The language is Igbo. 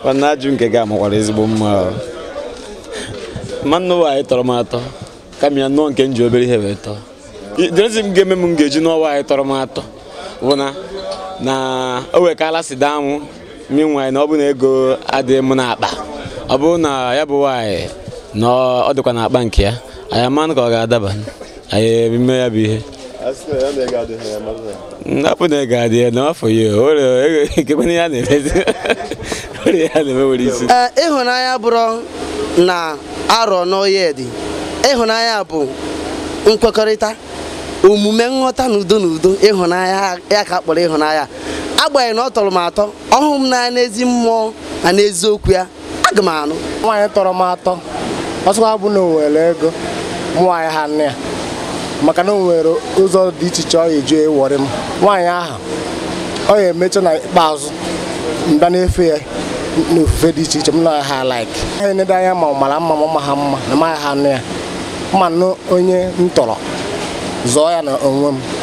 mana ajụjụ nke gị amakwara ezigbo mma mmanụ nwaanyị anyị tọrọ m atọ kama ya nụọ nke m ji obere ihe wee tọọ dresi m ga-eme m ga-eji n'ọwa anyị tọrọ m atọ bụ na na o wekala si daa mụ mi nwaanyị na ọ bụ na ego adịghị m n'akpa ọ bụrụ na ya bụ nwaanyị na ọ dịkwa n'akpa nke ya anyị amanụ ka ọ ga-adaba anyị emume ya bụ ihe napụ na ego adịghị n'afọ ya ekekwana ya na-emezi ọrịa ya na-eme nwere isi eh, ịhụnanya bụrụ na arọ n'oye dị ịhụnanya bụ nkwekọrịta omume nghọta n'udo n'udo ịhụnanya ya ka kpọrọ ịhụnanya agbanyeghị na ọ tọrọ m atọ ọhụụ m n'anya n'ezi mmụọ na n'eziokwu ya aga m anụ nwaanyị tọrọ m atọ ọsọ abụ na o ego mụ nwaanyị ha nne ya maka na o nwere ụzọ dị iche iche ọ eji ewọrị m nwaanyị ahụ ọ ya emecha na ikpeazụ mba na-efe ya n'ofufe dị iche iche m na ha laik ha enede anya ma ọ mara mma ma ha mma na maghị ha nụ ya ma nụ onye m tọrọ zọọ ya na onwe m